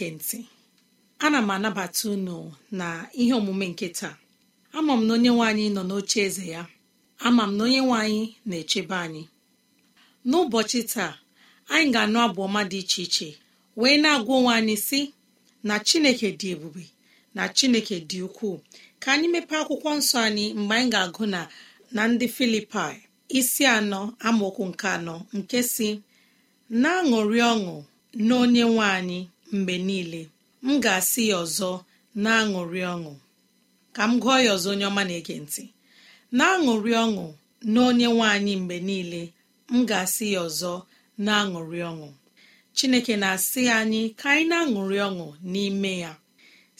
na-ege ntị ana m anabata unu na ihe omume nke taa ama m na onye nwe nọ n'oche eze ya ama m na onye nwe anyị na-echebe anyị n'ụbọchị taa anyị ga-anụ abụ ọma dị iche iche wee na-agwa onwe anyị si na chineke dị ebube na chineke dị ukwuu ka anyị mepee akwụkwọ nsọ anyị mgbe anyị ga-agụ na na ndị filipai isi anọ amaokwu nke anọ nke si na-aṅụrị ọṅụ na onye nwe anyị mgbe niile m ga-asị ya ọzọ na-aṅụrị ọṅụ ka m gụọ ya ọzọ onye ọma na-ege ntị na-aṅụrị ọṅụ na onye nwe anyị mgbe niile m ga-asị ya ọzọ na-aṅụrị ọṅụ chineke na-asị anyị ka anyị na-aṅụrị ọṅụ n'ime ya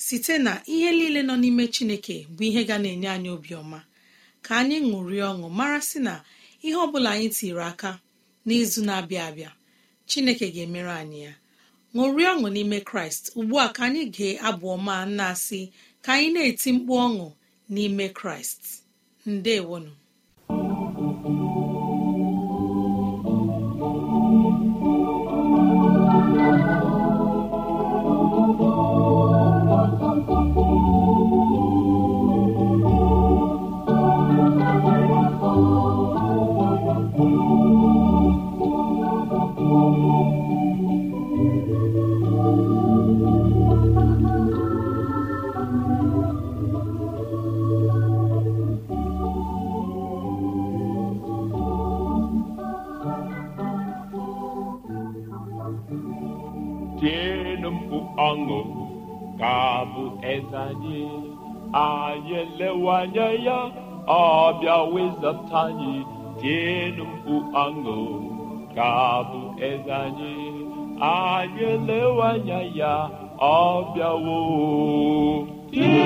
site na ihe niile nọ n'ime chineke bụ ihe ga na-enye anyị obiọma ka anyị ṅụrị ọṅụ mara sị na ihe ọ bụla anyị tiri aka n'izu na-abịa abịa chineke ga-emere anyị ya ṅụrie ọṅụ n'ime kraịst ugbu a ka anyị gee abụ ọma na-asị ka anyị na-eti mkpu ọṅụ n'ime kraịst ndewonu iwanye ya ọ bịa wezata anyị tienụ mkpu aṅụ ka bụ eze anyị anyị a ya ọ bịawo bịa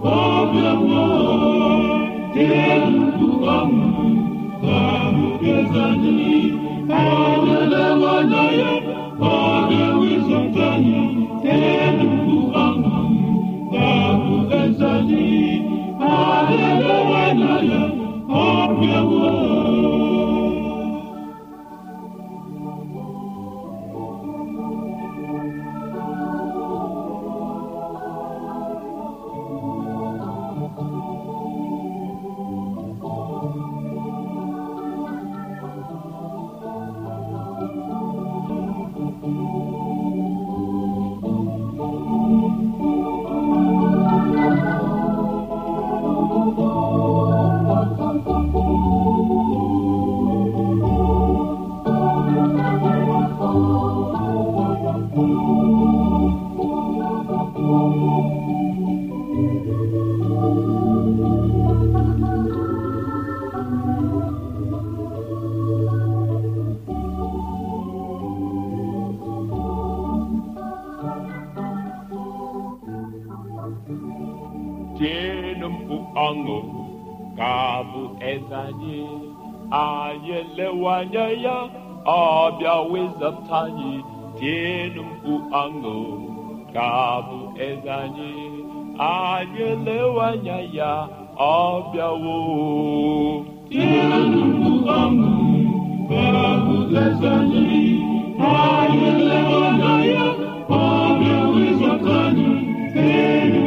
Oh, anya ya ọ bịa wezata anyị tienụ mkpu aṅụ ka bụ eze anyị anyị anya ya ọ bịawo anyị ya ọ bịa wezata anyị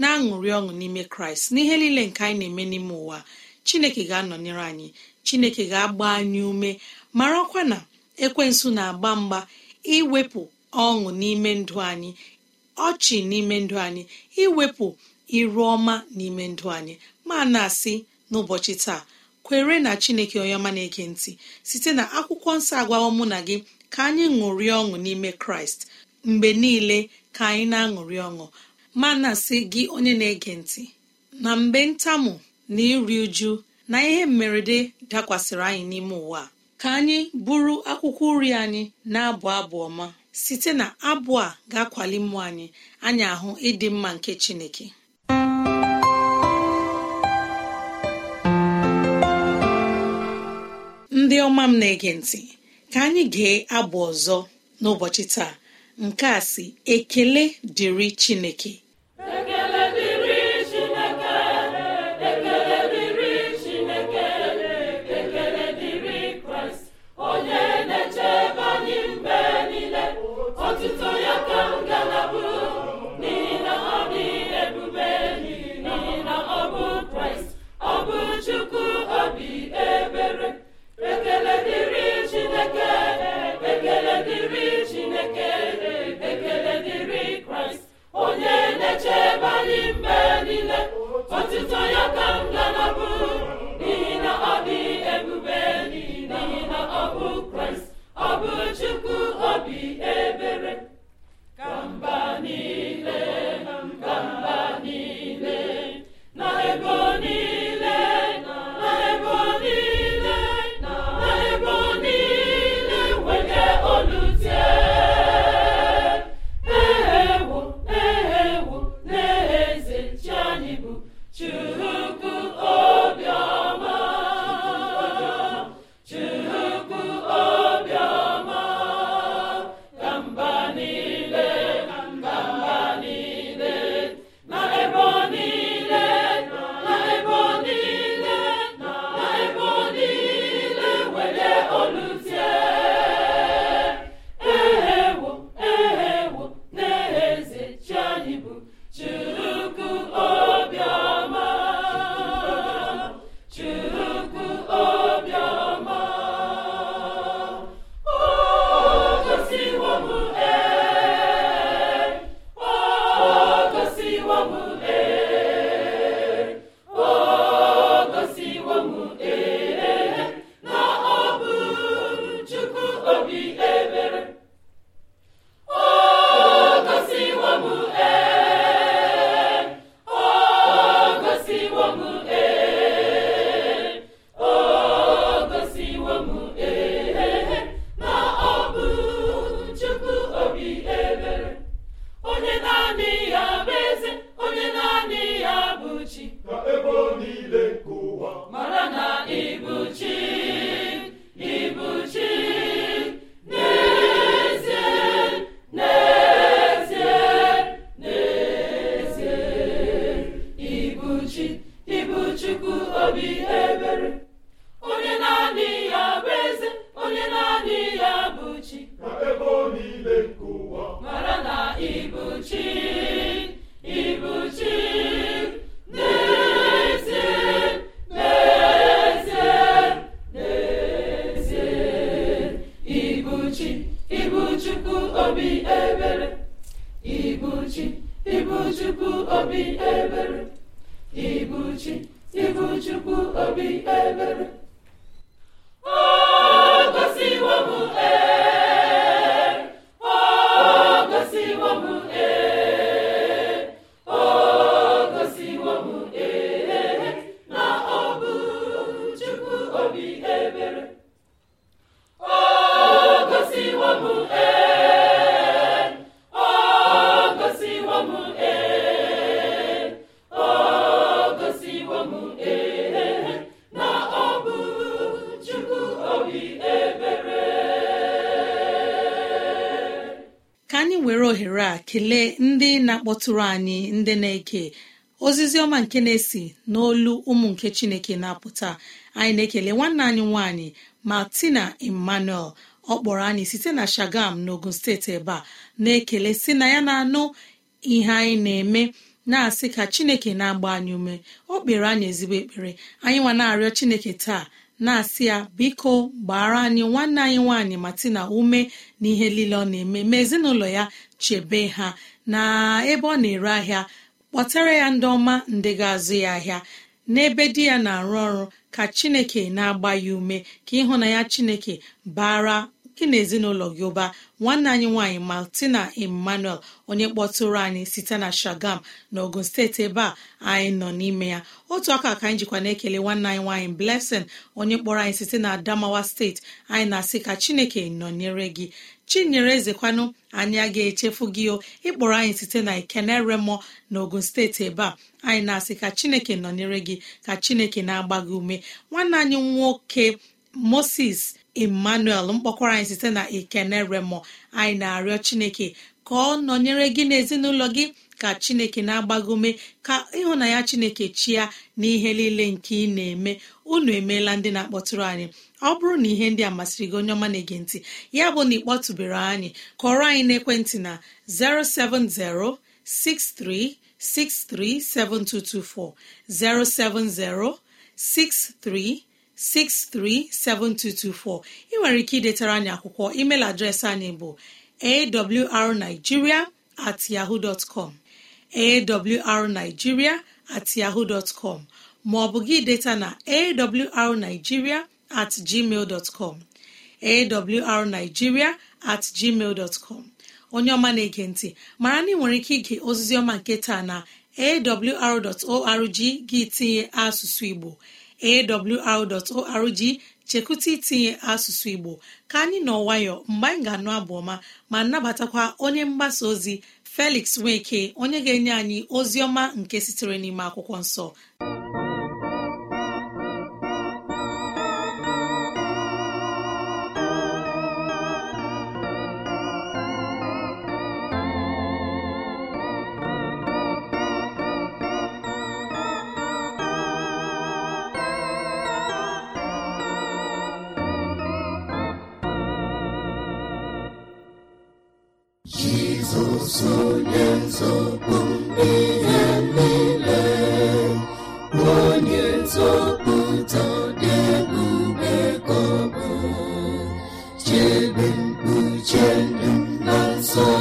na-aṅụrị ọṅụ n'ime kraịst n'ihe niile nke anyị na-eme n'ime ụwa chineke ga-anọnyere anyị chineke ga-agba anyị ume marakwa na ekwensu na-agba mgba iwepụ ọṅụ n'ime ndụ anyị ọchị n'ime ndụ anyị iwepụ iru ọma n'ime ndụ anyị ma na-asị n'ụbọchị taa kwere na chineke onye ọma na-ege ntị site na akwụkwọ nsọ agwawo mụ na gị ka anyị ṅụrịa ọṅụ n'ime kraịst mgbe niile ka anyị na-aṅụrị ọṅụ ma na sị gị onye na-ege ntị na mgbe ntamu na iri uju na ihe mmerede dakwasịrị anyị n'ime ụwa ka anyị bụrụ akwụkwọ uri anyị na-abụ abụ ọma site na abụ a ga-akwali mmụọ anyị anyị ahụ ịdị mma nke chineke ndị ọma m na-ege ntị ka anyị gee abụ ọzọ n'ụbọchị taa nke a si ekele dịrị chineke chukwu obi ebere tụrụ anyị ndị na-eke ozizi ọma nke na-esi n'olu ụmụ nke chineke na-apụta anyị na-ekele nwanne anyị nwanyị martina emmanuel ọ kpọrọ anyị site na shagam n'ogun steeti ebe a na-ekele si na ya na-anụ ihe anyị na-eme na-asị ka chineke na-agba anyị ume ọ kpere anyị ezigbo ekpere anyị nwa na-arịọ chineke taa na-asị ya biko gbara anyị nwanne anyị nwaanyị tina ume na ihe niile ọ na-eme ma ezinụlọ ya chebe ha na ebe ọ na-ere ahịa kpọtara ya ndị ọma ndị ga-azụ ya ahịa n'ebe di ya na-arụ ọrụ ka chineke na-agba ya ume ka ịhụnanya chineke bara gị na ezinụlọ gị ụba nwanne anyị nwaanyị martina emmanuel onye kpọtụrụ anyị site na shagam na ogun steeti ebe a anyị nọ n'ime ya otu aka ka anyị jikwa na-ekele nwanne anyị nwanyị blessing onye kpọrọ anyị site na adamawa steeti anyị na-asị ka chineke nọnyere gị chinyere ezekwanụ anyị a ga-echefu gị o ịkpọrọ anyị site na ikeneremo na ogun steeti ebe a anyị na-asị ka chineke nọnyere gị ka chineke na-agba gị ume nwanne anyị nwoke moses emmanuel mkpọkwara anyị site na ikeneremo anyị na-arịọ chineke ka ọ nọnyere gị n'ezinụlọ gị ka chineke na ume ka ịhụnanya chineke chia n'ihe niile nke ị na-eme unu emeela ndị na-akpọtụrụ anyị ọ bụrụ na ihe ndị a masịrị gị onye ọma na-ege ntị ya bụ na ịkpọtụbere anyị kọrọ anyị n'ekwentị na 07063637224 07063637224 ị nwere ike idetara anyị akwụkwọ email adreesị anyị bụ awrnigeria at yahoo dot com yahoo dot com ma ọ bụ gị deta na awrnigeria at gmail com at gmail onye ọma na-ege ntị mara na ị nwere ike ige ozizi ọma nke taa na awr.org gị tinye asụsụ igbo awr.org chekwụta itinye asụsụ igbo ka anyị nọ nwayọ mgbe anyị ga-anụ abụ ọma ma nabatakwa onye mgbasa ozi felix nweke onye ga-enye anyị ozi ọma nke sitere n'ime akwụkwọ nsọ so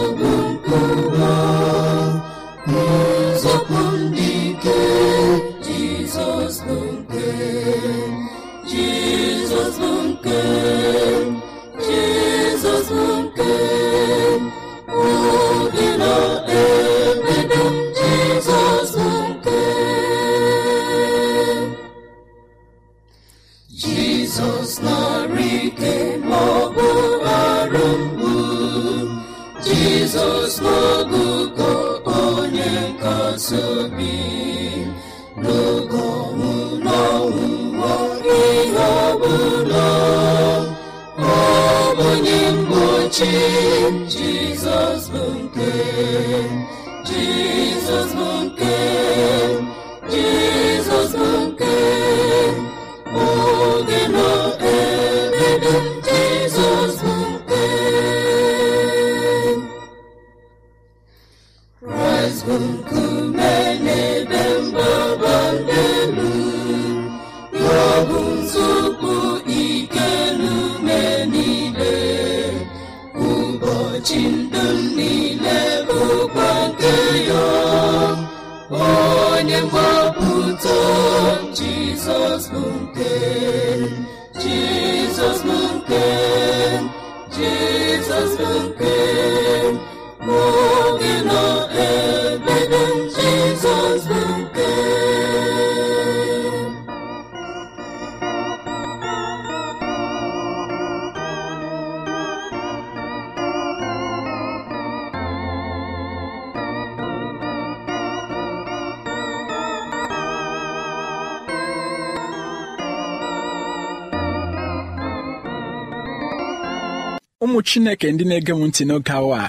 ụmụ chineke ndị na-ege m ntị n'oge awa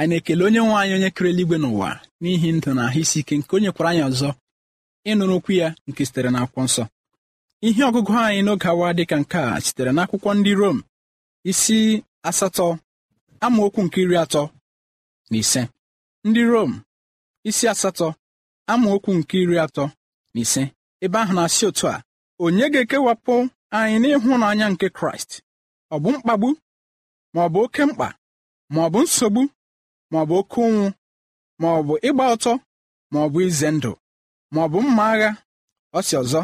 anyị na-ekele onye nwe anyị onye kere eluigwe n'ụwa n'ihi ndụ na ahụ isi ike nke onye kwara anyị ọzọ ịnụrụ okwu ya nke sitere akwụkwọ nsọ ihe ọgụgụ anyị n'oge awa dịka nke a sitere n'akwụkwọ ndị Rom isi asatọ amaokwu nke iri atọ na ise ndị Rom isi asatọ amaokwu nke iri atọ na ise ebe ahụ na-asị otu a onye ga-ekewapụ anyị n'ịhụnanya nke Kraịst ọ bụ mkpagbu ma ọ bụ oke mkpa ma ọ bụ nsogbu ma ọ bụ oke ụnwụ ma ọ bụ ịgba ọtọ ma ọ bụ ize ndụ ma ọ bụ mma agha ọ ọzọ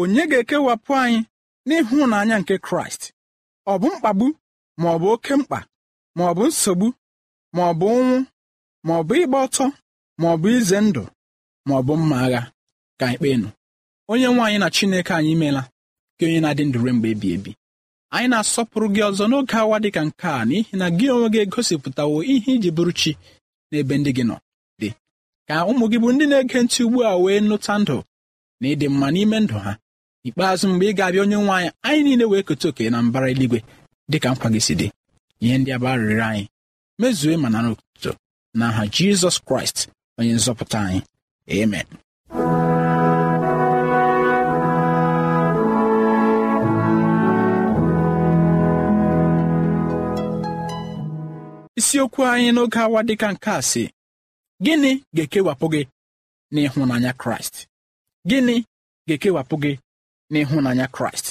onye ga-ekewapụ anyị n'ịhụnanya nke kraịst ọ bụ mkpagbu ma ọ bụ oke mkpa ma ọ bụ nsogbu ma ọ bụ ụnwụ ma ọ bụ ịgba ọtọ ma ọ bụ ize ndụ ma ọ bụ mma agha ka anyị nụ, onye nwaanyị na chineke anyị meela ka onye na-adị ndụre mgbe ebi ebi anyị na-asọpụrụ gị ọzọ n'oge awa dị ka nke a n'ihi na gị onwe gị egosipụtawo ihe iji bụrụ chi n'ebe ndị gị nọ dị ka ụmụ gị bụ ndị na-ege ntị ugbu a wee nụta ndụ na ịdị mma n'ime ndụ ha ikpeazụ mgbe ị ga-abịa onye nwe anyị anyị niile wee keta oke na mbara eluigwe dị ka nkwa gị si dị ihe ndị aba arịrịọ anyị mezue ma na na n'aha Jizọs Kraịst onye nzọpụta anyị amen isiokwu anyị n'oge awa dịka nke a si gịnị ga-ekewapụ gị n'ịhụnanya kraịst gịnị ga-ekewapụ gị n'ịhụnanya kraịst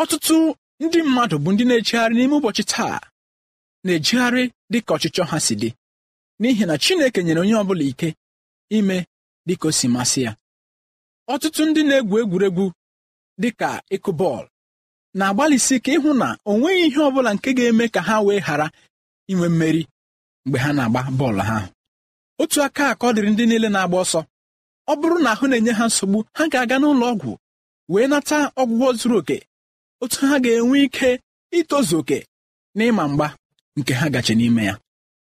ọtụtụ ndị mmadụ bụ ndị na-ejegharị n'ime ụbọchị taa na-ejegharị dị ka ọchịchọ ha si dị n'ihi na Chineke nyere onye ọ bụla ike ime dịka o si masị ya ọtụtụ ndị na-egwu egwuregwu dịka ịkụ bọọlụ na-agbalịsi ike ịhụ na o nweghị ihe ọ bụla nke ga-eme ka ha wee ghara inwe mmeri mgbe ha na-agba bọọlụ ha otu aka ka ọ dịrị ndị niile na-agba ọsọ ọ bụrụ na ahụ na-enye ha nsogbu ha ga-aga n'ụlọ ọgwụ wee nata ọgwụgwọ zuru oke otu ha ga-enwe ike itozu oke na ịma mgba nke ha gachi n'ime ya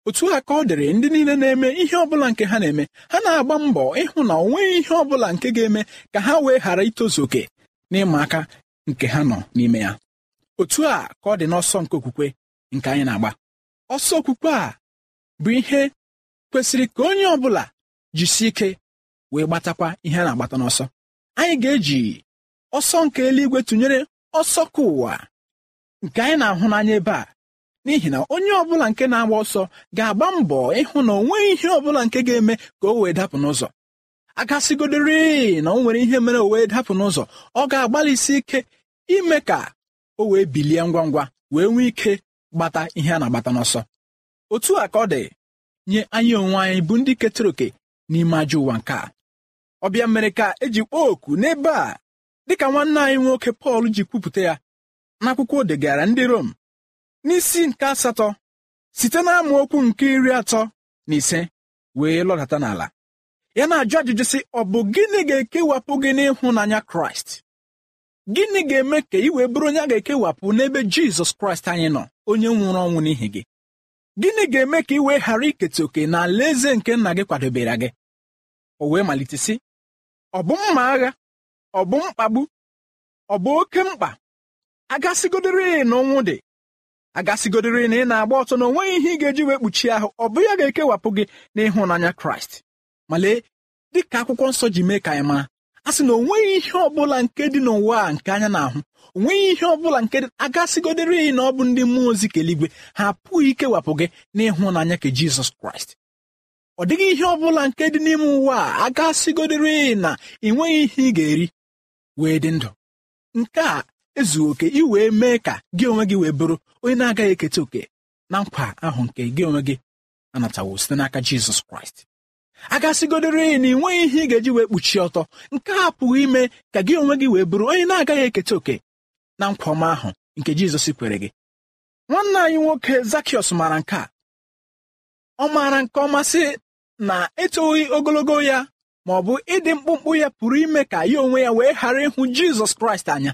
otu a ka ọ dịrị ndị niile na-eme ihe ọbụla nke ha na-eme ha na-agba mbọ ịhụ na onweghị ihe bụla nke ga-eme ka ha wee ghara itozu oke na ịma aka nke ha nọ n'ime ya otu a ka ọ dị n'ọsọ nke okwukwe nke anyị na-agba ọsọ okwukwe a bụ ihe kwesịrị ka onye ọ bụla ike wee gbatakwa ihe a na-agbata n'ọsọ anyị ga-eji ọsọ nke eluigwe tụnyere ọsọ ka ụwa nke anyị na-ahụ n'anya ebe a n'ihi na onye ọbụla nke na-agba ọsọ ga-agba mbọ ịhụ na o ihe ọbụla nke ga-eme ka o wee dapụ n'ụzọ agasịgodorị na o nwere ihe mere o wee dapụ n'ụzọ ọ ga-agbalịsi ike ime ka o wee bilie ngwa ngwa wee nwee ike gbata ihe a na-agbata n'ọsọ otu a ka ọ dị nye anyị onwe anyị bụ ndị ketara oke n'ime ajọ ụwa nke a ọbịa mere ka eji kpọọ oku n'ebe a dịka nwanne anyị nwoke Pọl ji kwupụta ya n'akwụkwọ o degara ndị Rom n'isi nke asatọ site na okwu nke iri atọ na ise wee lọdata n'ala ya na-ajụ ajụjụ sị ọ bụ gịnị ga-ekewapụ gị n'ịhụnanya Kraịst gịnị ga-eme ka ị wee bụrụ onye a ga-ekewapụ n'ebe jizọs kraịst anyị nọ onye nwụrụ ọnwụ n'ihi gị gịnị ga-eme ka ị wee ghara iketa oke na eze nke nna gị kwadebere gị o wee malite sị ọ bụ mma agha ọ bụ mkpagbu ọ bụ oke mkpa agasigodịrị na ọnwụ dị agasigodịrị na ị na-agba ọtọ na onweghị ihe ị ga-eji wee kpuchie ahụ ọ bụ ya ga-ekewapụ gị n'ịhụnanya kraịst ma lee dị ka akwụkwọ nsọ ji mee ka anyị maa a sị na onweghị ihe ọbụla nke dị n'ụwa a nke anya na-ahụ onweghị ihe ọbụla nke dị agasigodere ya na ọ bụ ndị mmụọ ozi keligwe ha apụghị ikewapụ gị n'ịhụnanya nke Jizọs Kraịst ọ dịghị ihe ọbụla nke dị n'ime ụwa a agasigodere iyi na ị nweghị ihe ị ga-eri wee dị ndụ nke a ezughị oke ị wee mee ka gị onwe gị wee bụrụ onye na-agaghị eketa oke na nkwa ahụ nke gị onwe gị anatawo site n'aka Jizọs Kraịst agasịgodore na ị nweghị ihe ị ga-eji wee kpuchie ọtọ nke a pụghị ime ka gị onwe gị wee bụrụ onye na-agaghị eketa oke na nkwa ọma ahụ nke Jizọs kwere gị nwanne anyị nwoke Zakiọs maara nke a ọ maara nke ọma sị na etoghị ogologo ya ma ọ bụ ịdị mkpụmkpụ ya pụrụ ime ka ya onwe ya wee ghara ịhụ Jizọs Kraịst anya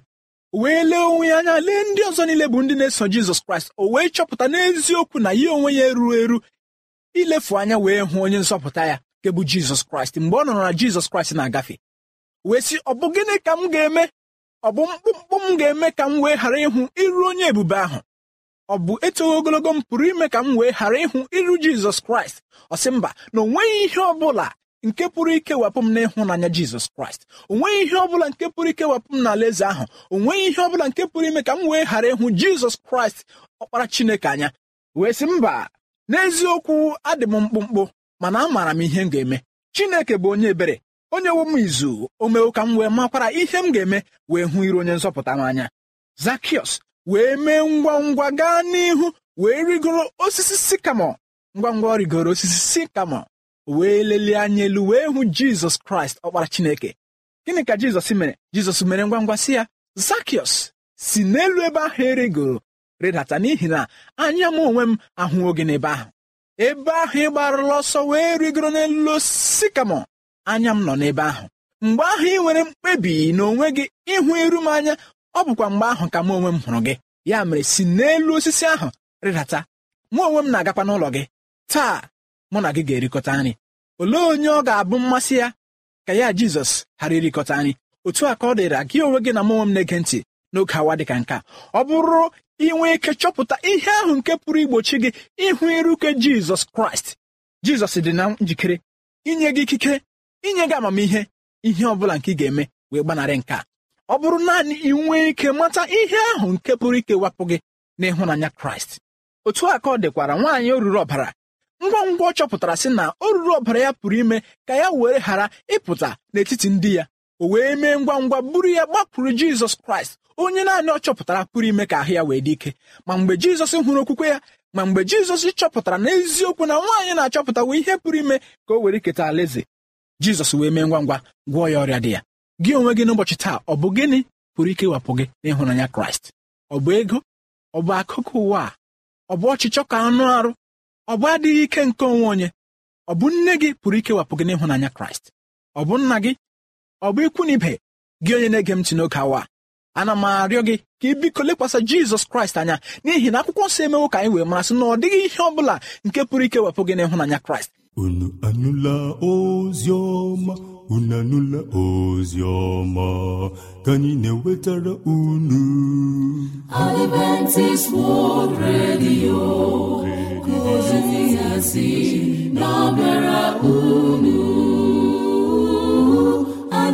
wee lee onwe ya anya lee ndị ọzọ niile bụ ndị na-eso Jizọs Kraịst o wee chọpụta n'eziokwu na ya onwe ya erughị eru ilefu anya wee hụ onye nzọpụta ya nke bụ jizọs kraịst mgbe ọ nọrọ na jizọs kraịst na-agafe wee sị ọ bụ gịnị ka m ga-eme ọ bụ mkpụmkpụ m ga-eme ka m wee ghara ịhụ iru onye ebube ahụ ọ bụ eto ogologo m pụrụ ime ka m wee ghara ịhụ iru jizọs kraịst ọ sị mba na onweghị ihe ọ bụla nke pụrụ ikewapụ m n'ịhụnanya jizọs kraịst onweghị ihe ọ bụla nke pụrụ ikewapụ m n'ala eze ahụ o nweghị ihe ọ bụla nke pụrụ ime ka m wee ghara ịhụ jizọs kraịst ọkpara chineke anya wee sị mba n'eziokwu adị m mkpụmkpụ mana amaara m ihe m ga-eme Chineke bụ onye ebere onye wo m izu o mewo ka m wee makwara ihe m ga-eme wee hụ iru onye nzọpụta m anya wee mee ngwa ngwa gaa n'ihu wee rigoro osisi sikamo ngwa ngwa rigoro osisi sikamo wee lelie anya elu wee hụ Jizọs Kraịst ọkpara Chineke gịnị ka Jizọs mere Jizọs mere ngwa ngwa si ya Zakiọs si n'elu ebe ahụ erigoro rịdata n'ihi na anya m onwe m ahụwo gị n'ebe ahụ ebe ahụ ị gbarụla ọsọ wee rigoro n'elu osisi kamọ anya m nọ n'ebe ahụ mgbe ahụ ị nwere mkpebi na onwe gị ịhụ iru m anya ọ bụkwa mgbe ahụ ka m onwe m hụrụ gị ya mere si n'elu osisi ahụ rịdata mụ onwe m na-agakwa n'ụlọ gị taa mụ na gị ga-erikọta nri olee onye ọ ga-abụ mmasị ya ka ya jizọs ghara irikọta nri otu a ka ọ dịra gị onwe gị na m onwe m na-ege ntị n'oge awa dị ka nke a ọ bụrụ inwe ike chọpụta ihe ahụ nke pụrụ igbochi gị ịhụ iruke jizọs kraịst jizọs dị na njikere inye gị ikike inye gị amamihe ihe ọ bụla nke ị ga-eme wee gbanarị nke a ọ bụrụ naanị ị nwee ike mata ihe ahụ nke pụrụ ikewapụ gị n'ịhụnanya kraịst otu a ka ọ dịkwara nwaanyị oruru ọbara ngwa ngwa ọ chọpụtara sị na oruru ọbara ya pụrụ ime ka ya were ghara ịpụta n'etiti ndị ya o wee mee ngwa ngwa buru ya gbapụrụ jizọs kraịst onye naanị ọ chọpụtara pụrụ ime ka ahụ ya wee dị ike ma mgbe jizọs hụrụ okwukwe ya ma mgbe jizọs chọpụtara n'eziokwu na nwaanyị na-achọpụtawo ihe pụrụ ime ka o were iketa alaeze jizọs wee mee ngwa ngwa gwọọ ya ọrịa dị ya gị onwe gị n'ụbọchị taa ọ bụ gịnị pụrụ ike ịwapụ gị n'ịhụnanya kraịst ọ bụ ego ọ bụ akụkụ ụwa a ọ bụ ọchịchọ ka anụ arụ ọ bụ adịghị ike nke onwe onye ọ bụ nne gị pụrụ ikewapụ gị n'ịhụnanya kraịst ọ bụ nna gị ọ bụ ikwu na ibe gị onye na-ege m ntị n'oge awa ana m arịọ gị ka ị biko lekwasị jizọs kraịst anya n'ihi na akwụkwọ nsọ emewo ka anyị wee marasị na ọ dịghị ihe ọ bụla nke pụrụ ike wepụ gị n'ịhụnanya kraịst unu anụla ozi ọma unu anụla ozi ọma ka anyị na-ewetara unu Adventist World Radio na-abịara unu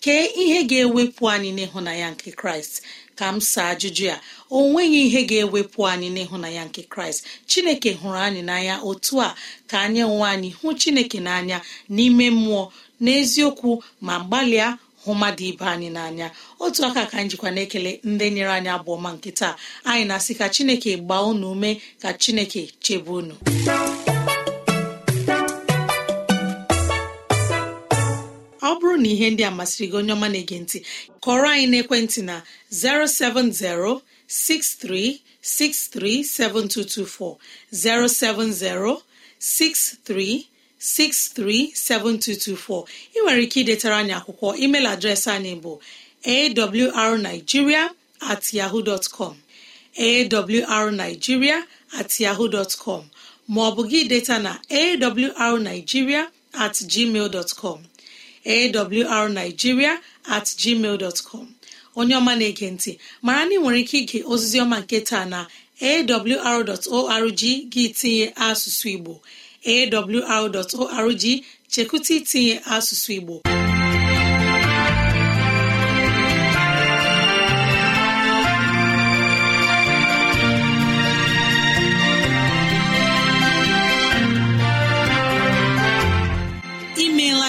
kee ihe ga-ewepụ anyị na ya nke kraịst ka m saa ajụjụ ya o nweghị ihe ga-ewepụ anyị na ya nke kraịst chineke hụrụ anyị n'anya otu a ka anyị nwe anyị hụ chineke n'anya n'ime mmụọ n'eziokwu ma gbalịa hụ mmadụ ibe anyị n'anya otu aka ka anyị jikwa na-ekele ndị nyere anyị abụọ ma nke anyị na-asị ka chineke gbaa unu ume ka chineke chebe unu na ihe ndị amasịrị masịrị gị onye ọma na-ege ntị kọrọ anyị n'ekwentị na 070 7224, 070 7224. ị nwere ike idetara anyị akwụkwọ email adreesị anyị bụ awrnigeria at yahoo dot at yahoo ma ọ bụ gị deta na awrnigeria at gmail awrnigeria at gmail com. onye ọma na-ege ntị mara na ị nwere ike ige ọma nke taa na awr.org gị tinye asụsụ igbo awr.org chekwụta itinye asụsụ igbo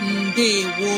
ndewo